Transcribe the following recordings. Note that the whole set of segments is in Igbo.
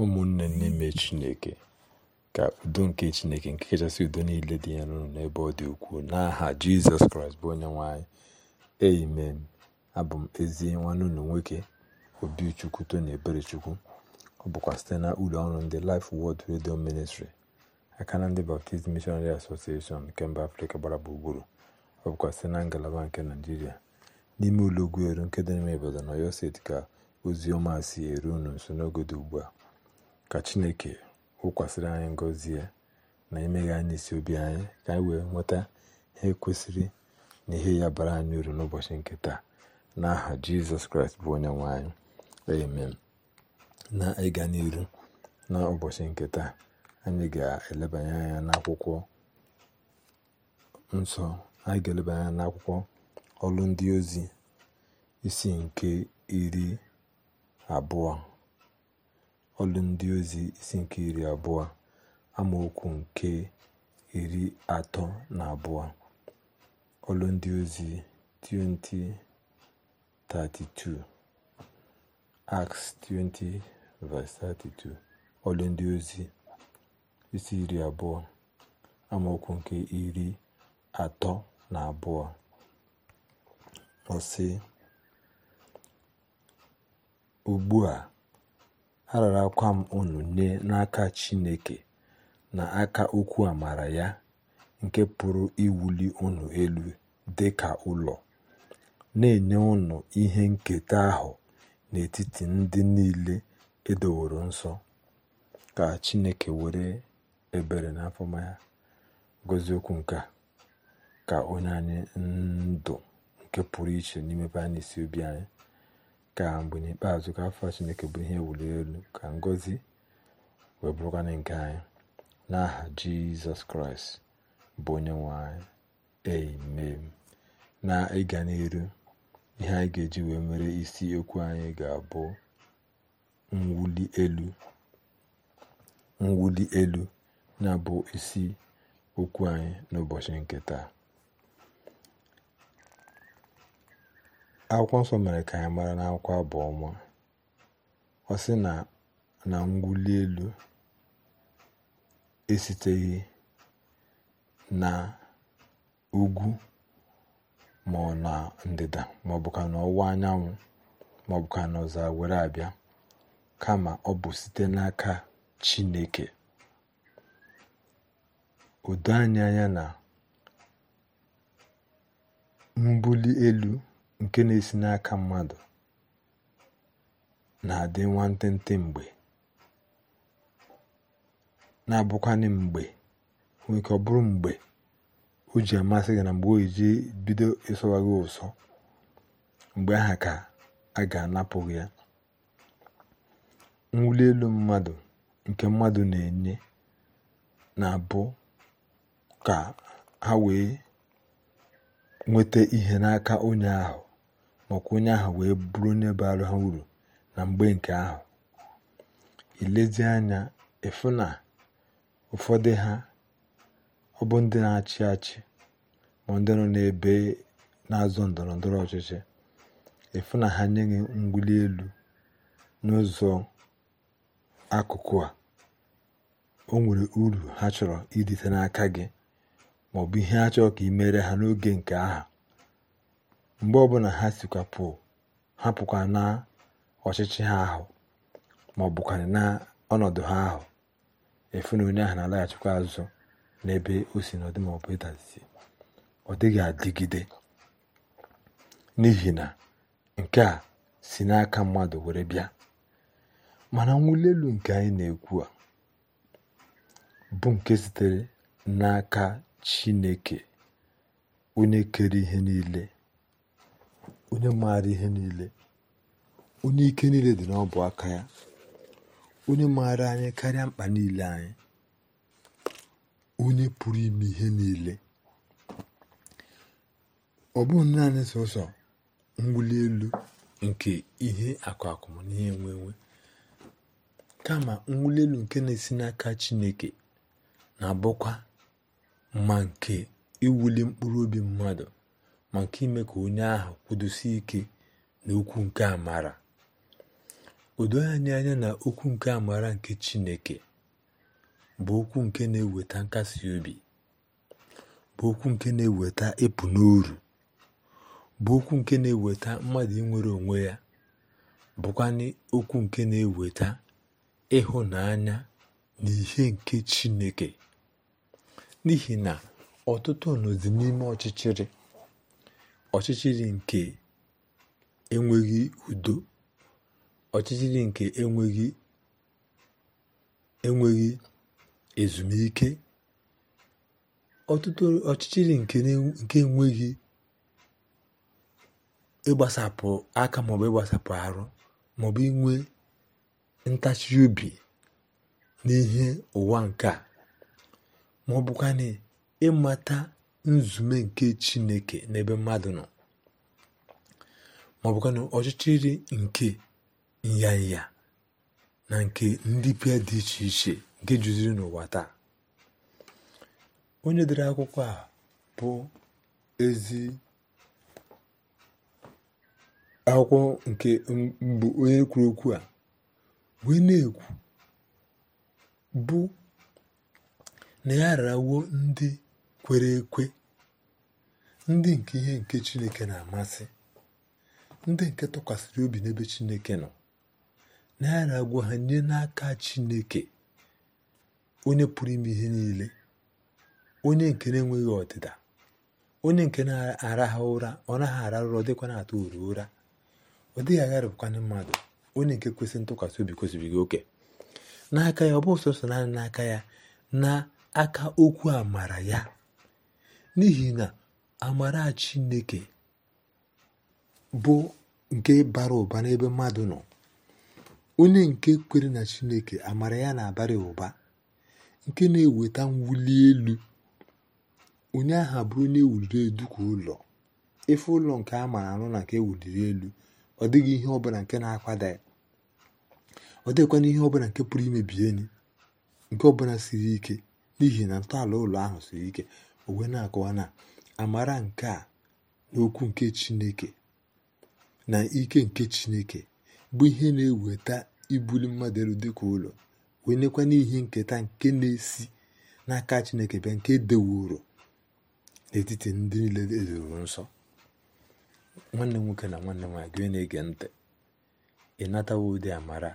ụmụnne n'ime chineke ka udo nke chineke nke kachasị udo niile dị ya n'ụlọ n'ebe ọ dị ukwuu n'aha jizọs kraịst bụ onye nwanyị amen abụ m ezi nwanne ụlọ nwoke obichukwu tony eberechukwu ọ bụkwa site na ụlọ ọrụ ndị Life Word Radio Ministry aka na ndị Baptist Missionary Association nke mba afrika gbara gburugburu ọ bụkwa site na ngalaba nke naijiria n'ime ụlọ ugwu eru nke dị n'ime obodo na Ọyọ steeti ka ozi ọma si eru unu nso n'oge dị ugbu a ka chineke wụkwasịrị anyị ngọzi ya na imeghe anyị isi obi anyị ka anyị wee nweta ihe kwesịrị na ihe ya bara anyị uru n'ụbọchị nke taa n'aha jizọs kraịst bụ onye nwe amen na ịga n'iru n'ụbọchị nke taa anyị ga-elebanye anya n'akwụkwọ nsọ anyị ga-elebanye anya n'akwụkwọ ọrụ ndị ozi isi nke iri abụọ ọlụ ndị ozi isi nke iri abụọ amaokwu nke iri atọ na abụọ ọlụ ndị ozi 20:32 Acts 20:32 ọlụ ndị ozi isi iri abụọ amaokwu nke iri atọ na abụọ ọsị sị ugbu a Ararakwa m unu nye n'aka Chineke na aka okwu amara ya, nke pụrụ iwuli unu elu dị ka ụlọ, na-enye unu ihe nketa ahụ n'etiti ndị niile edoworo nsọ. Ka Chineke were ebere na amụma ya gọzie okwu nke ka onye anyị ndụ nke pụrụ iche n'ime anyị isi obi anyị. ka mgbe n'ikpeazụ ka afọ chineke bụ ihe wuli elu ka ngozi wee bụrụkwana nke anyị n'aha jizọs kraịst bụ onye nwe anyị na ịga n'elu ihe anyị ga-eji wee mere isi okwu anyị ga-abụ nwuli elu mwuli elu na bụ isi okwu anyị n'ụbọchị nke taa akwụkwọ nsọ mere ka anyị mara n'akwụkwọ abụọ ọma ọ sị na na elu esiteghị na ugwu ma ọ na ndịda ma ọ bụkwa na ọwụwa anyanwụ ma ọ bụkwa na ọzara were abịa kama ọ bụ site n'aka Chineke odo anyị anya na mbuli elu nke na-esi n'aka mmadụ na-adị nwantịntị mgbe na-abụkwanị mgbe nwoke ọ bụrụ mgbe o ji amasị gị na mgbe o ji bido ịsụwa gị ụsọ mgbe aha ka a ga anapụghị ya mwuli elu mmadụ nke mmadụ na-enye na-abụ ka ha wee nweta ihe n'aka onye ahụ maọkwa onye ahụ wee bụrụ onye bara ha uru na mgbe nke ahụ ilezi anya ịfụ na ụfọdụ ha ọ bụ ndị na-achị achị ma ndị nọ n'ebe na-azọ ndọrọ ndọrọ ọchịchị ịfụ na ha nye gị elu n'ụzọ akụkụ a o nwere uru ha chọrọ idite n'aka gị maọbụ ihe ha ka ị mere ha n'oge nke aha mgbe ọbụla ha sikwapụ hapụkwa na ọchịchị ha ahụ ma ọ na ọnọdụ ha ahụ efu na onye ahụ na-alaghachikwa azụ n'ebe o si n'ọdị ma ọ ọ dịghị adịgide n'ihi na nke a si n'aka mmadụ were bịa mana mwụli elu nke anyị na-ekwu a bụ nke sitere n'aka Chineke onye kere ihe niile onye maara ihe niile onye ike niile dị n'ọbụ aka ya onye maara anyị karịa mkpa niile anyị onye pụrụ ime ihe niile ọ bụghị naanị sọsọ mwuli elu nke ihe akụ akụ na enwe enwe kama mwuli elu nke na-esi n'aka chineke na-abụkwa ma nke iwuli mkpụrụ obi mmadụ ma nke ime ka onye ahụ kwudosie ike na okwu nke amara o anyị anya na okwu nke amara nke Chineke bụ okwu nke na-eweta nkasi obi bụ okwu nke na-eweta ịpụ n'uru bụ okwu nke na-eweta mmadụ inwere onwe ya bụkwanị okwu nke na-eweta ịhụnanya na ihe nke Chineke n'ihi na ọtụtụ nọzi n'ime ọchịchịrị ọchịchịrị nke enweghị udo ọchịchịrị nke enweghị enweghị ezumike ọtụtụ ọchịchịrị nke enweghị ịgbasapụ aka maọbụ ịgbasapụ arụ maọbụ inwe ntachi obi n'ihe ụwa nke a bụkwa na ịmata nzume nke chineke n'ebe mmadụ nọ ma ọ ọchịchịrị nke nyanya na nke ndị pịa dị iche iche nke juziri n'ụwa taa onye dere akwụkwọ a bụ ezi akwụkwọ nke mbụ onye kwuru okwu a wee na-ekwu bụ na ya rawo ndị kwere ekwe ndị nke ihe nke Chineke na-amasị ndị nke tụkwasịrị obi n'ebe Chineke nọ na ya na-agwa ha nye n'aka Chineke onye pụrụ ime ihe niile onye nke na-enweghị ọdịda onye nke na-araha ara ụra ọ naghị arahụ ụra dịkwa na-atụ uru ụra ọ dịghị agharịpụkwana mmadụ onye nke kwesịrị ntụkwasị obi kwesịrị gị oke n'aka ya ọ bụ sọsọ naanị n'aka ya na aka okwu amara ya n'ihi na amara chineke bụ nke bara ụba n'ebe mmadụ nọ onye nke kwere na chineke amara ya na-abara ụba nke na-eweta mwuli elu onye ahụ abụrụ onye ewuliri elu ka ụlọ efe ụlọ nke a mara anụ na nke ewuliri elu ọ dịghị ihe ọbụla nke na-akwada ya ọ dịghịkwana ihe ọbụla nke pụrụ imebi enyi nke ọbụla siri ike n'ihi na ntọala ụlọ ahụ siri ike o wee na-akọwa na amara nke a n'okwu nke chineke na ike nke chineke bụ ihe na-eweta ibuli mmadụ elu dịka ụlọ wee nekwa n'ihe nketa nke na-esi n'aka chineke bịa nke dewuru n'etiti ndị niile edoro nsọ nwanne nwoke na nwanne m nwaanyị ege ntị ị natawo ụdị amara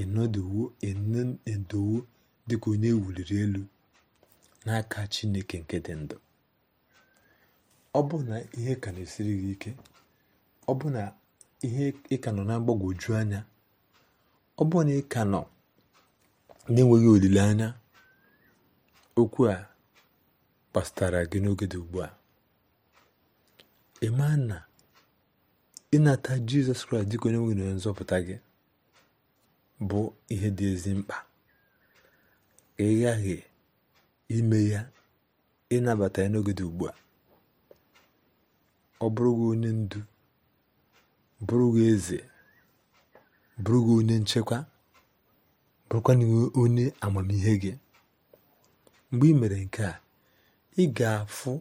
ịnọdowo dịka onye ewuliri elu n'aka Chineke nke dị ndụ ọ bụ na ihe ka na-esiri gị ike ọ bụ na ihe ị ka nọ na mgbagwoju anya ọ bụ na ị ka nọ na-enweghị olileanya okwu a kpasatara gị n'oge dị ugbu a ịma na ịnata jizọs kraịst dịka onye nwe na nzọpụta gị bụ ihe dị ezi mkpa ị ime ya ịnabata ya n'oge dị ugbu a ọ bụrụ onye ndu bụrụ eze bụrụ gị onye nchekwa na onye amamihe gị mgbe ị mere nke a ị ga-afụ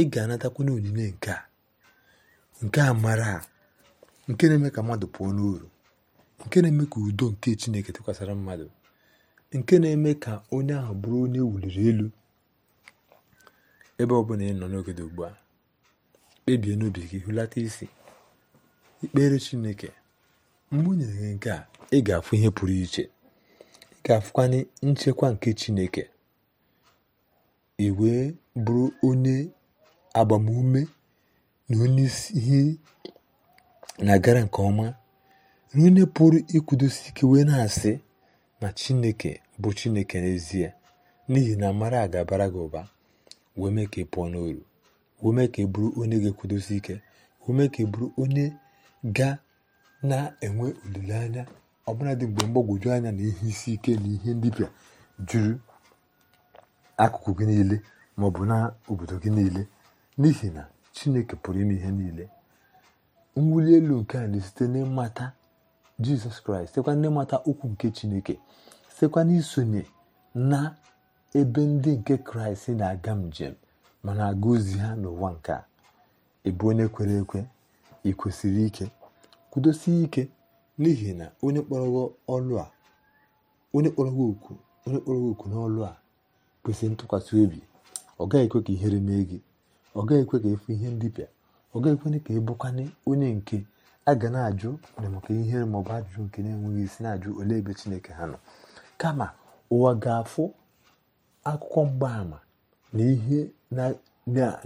ị onyinye nke a nke a mara a, nke na-eme ka mmadụ pụọ n'uru nke na-eme ka udo nke Chineke tụkwasara mmadụ nke na-eme ka onye ahụ bụrụ onye wuliri elu ebe ọ bụla ị nọ n'oge dị ugbu a kpebie n'obi gị hụlata isi ikpere chineke mgbe o gị nke a ị ga-afụ ihe pụrụ iche ị ga-afụkwanye nchekwa nke chineke ị bụrụ onye agbamume na onye isi ihe na gara nke ọma na onye pụrụ ikwudosi ike wee na-asị na chineke bụ chineke n'ezie n'ihi na mara ga-abara gị ụba wee mee ka ị pụọ n'oru wee mee ka ị bụrụ onye ga-ekwudosi ike wee mee ka ị bụrụ onye ga na-enwe olileanya ọbụla dị mgbe mgbagwoju anya na ihe isi ike na ihe ndịbịa juru akụkụ gị niile ma ọ bụ na obodo gị niile n'ihi na chineke pụrụ ime ihe niile mwuli elu nke a na-esite n'ịmata jizọs kraịst sịkwa n'ịmata mata okwu nke chineke sịkwa n'isonye na ebe ndị nke kraịst na-aga njem ma na-aga ozi ha n'ụwa nke a ebe onye kwere ekwe ị ike kwudosie ike n'ihi na onye kpọrọghị ọlụ a onye kpọrọghị okwu onye kpọrọghị okwu n'ọlụ a kwesịrị ntụkwasị obi ọ gaghị ekwe ka ihere mee gị ọ gaghị ekwe ka efu ihe bịa ọ gaghị ekwe ka ị bụkwanye onye nke a ga na-ajụ maka ihe maọbụ ajụjụ nke na-enweghị isi na-ajụ ole ebe chineke ha nọ kama ụwa ga-afụ akụkọ mgbaàmà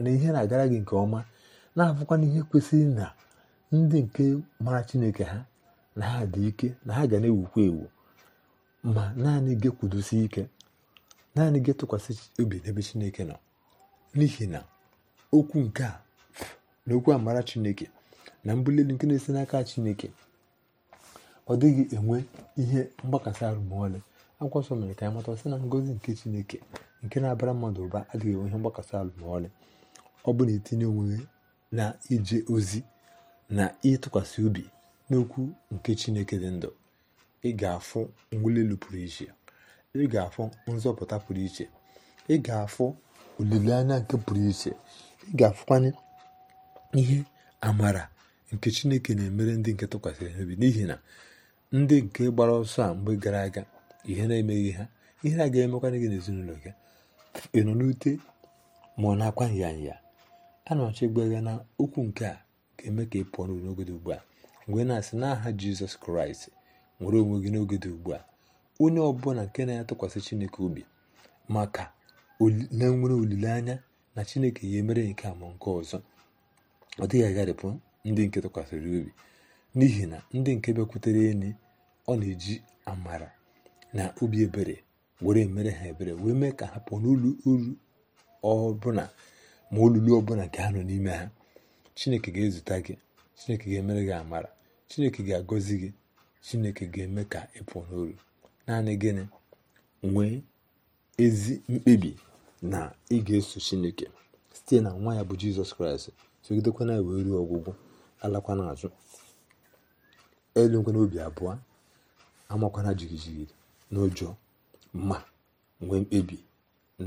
na ihe na-agara gị nke ọma na afụkwa ihe kwesịrị na ndị nke mara chineke ha na ha dị ike na ha ga na-ewukwa ewu ma naanị gị ike naanị gị tụkwasị obi n'ebe chineke nọ n'ihi na okwu nke a na okwu amara chineke na mbuli elu nke na-esi n'aka chineke ọ dịghị enwe ihe mgbakasị arụ akwụkwọ nsọ mere ka anyị mata sị na ngozi nke chineke nke na-abara mmadụ ụba adịghị enwe ihe mgbakasị arụ ọ bụ na etinye onwe na ije ozi na ịtụkwasị obi n'okwu nke chineke dị ndụ ị ga-afụ mwuli elu pụrụ iche ị ga-afụ nzọpụta pụrụ iche ị ga-afụ olileanya nke pụrụ iche ị ga-afụkwanye ihe amara nke chineke na-emere ndị nke tụkwasịrị obi n'ihi na ndị nke gbara ọsọ a mgbe gara aga ihe na-emeghị ha ihe a ga-emekwana gị n'ezinụlọ gị ị nọ n'ute ma ọ na-akwa nyanya a na-achọ ịgwa na okwu nke a ga-eme ka ị pụọ n'uru n'oge dị ugbu a mgbe na-asị n'aha jizọs kraịst nwere onwe gị n'oge dị ugbu a onye ọbụla nke na aya tụkwasị chineke obi maka na nwere olileanya na chineke ya emere nke a ma nke ọzọ ọ dịghị agharịpụ ndị nke tụkwasịrị obi n'ihi na ndị nke bịakwutere enyi ọ na-eji amara na obi ebere were mere ha ebere wee mee ka ha pụọ n'olu uru ọbụla ma olulu ọbụla nke ha nọ n'ime ha chineke ga-ezute gị chineke ga-emere gị amara chineke ga-agọzi gị chineke ga-eme ka ị pụọ n'olu naanị gịnị nwee ezi mkpebi na ị ga-eso chineke site na nwa ya bụ jizọs kraịst sogidekwana wee ruo ọgwụgwụ alakwa n'azụ elu nkwe n'obi abụọ amakwana jigijigi n'ụjọ ma nwee mkpebi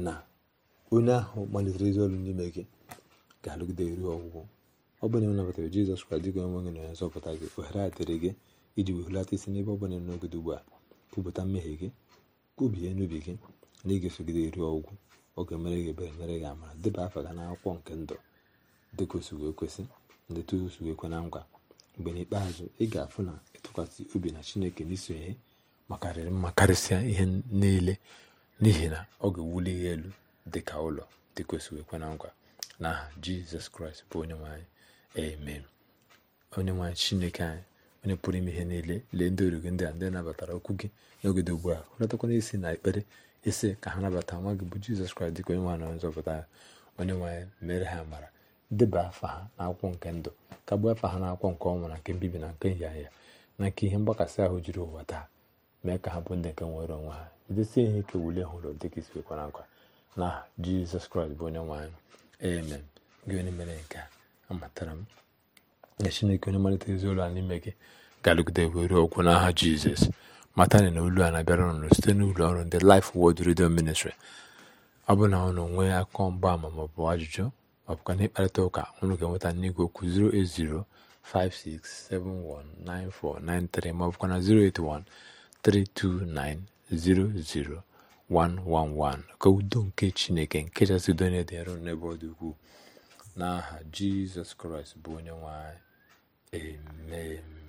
na onye ahụ malitere ezi ọrụ n'ime gị ga-alụgide ruo ọgwụgwụ ọ bụla nabatara jizọs kraịst dịka onye nwe gị na onye nzọpụta gị ohere adịrị dịrị gị iji wehulata isi n'ebe ọ bụla n'ogide ugbu a kwupụta mmehie gị kwubie n'ubi gị na ịga ịga-esogide ruo ọgwụgwụ oge mere gị ebere mere gị amara deba afa gị n'akwụkwọ nke ndụ dịka o wee kwesị ndetusu ekwe na nkwa mgbe n'ikpeazụ ị ga-afụ na ịtụkwasị obi na chineke n'isonye makarịrị mma karịsịa ihe niile n'ihi na ọ ga-ewuli elu dị ka ụlọ dị kwesịrị ekwe na nkwa na aha jizọs kraịst bụ onye nwanyị amen onye nwanyị chineke anyị onye pụrụ ime ihe niile lee ndị origo ndị a ndị nabatara okwu gị n'oge dị ugbu a hụrụtakwana isi na ekpere ise ka ha nabata nwa gị bụ jizọs kraịst dịka onye nwanyị na nzọpụta ya onye nwanyị mere ha mara deba afa ha akwụkwọ nke ndụ kagbuo afa ha akwụkwọ nke ọnwụ na nke mbibi na nke nyanya na nke ihe mgbakasị ahụ jiri ụwa taa mee ka ha bụ ndị nke nwere onwe ha jidesie ihe ike wule hụrụ dịka isi kwara akwa na jizọs kraịst bụ onye nwe anyị amen gị onye mere nke a amatara m na chineke onye malite ezi ụlọ a n'ime gị ga-alụgide were okwu n'aha jizọs mata na olu a na-abịara ụnụ site n'ụlọ ọrụ ndị lif Word Radio ministri ọ bụ na ụnụ nwee akọ mgbaama maọbụ ajụjụ ma bụkwa n'ịkparịta ụka unu ga-enweta n'igwe okwu 08056719493 ma ọ na 08132900111 ka udo nke Chineke nke chasị udo onye dị nro n'ebe ọ dị ukwuu n'aha Jizọs Kraịst bụ onye nwe anyị amen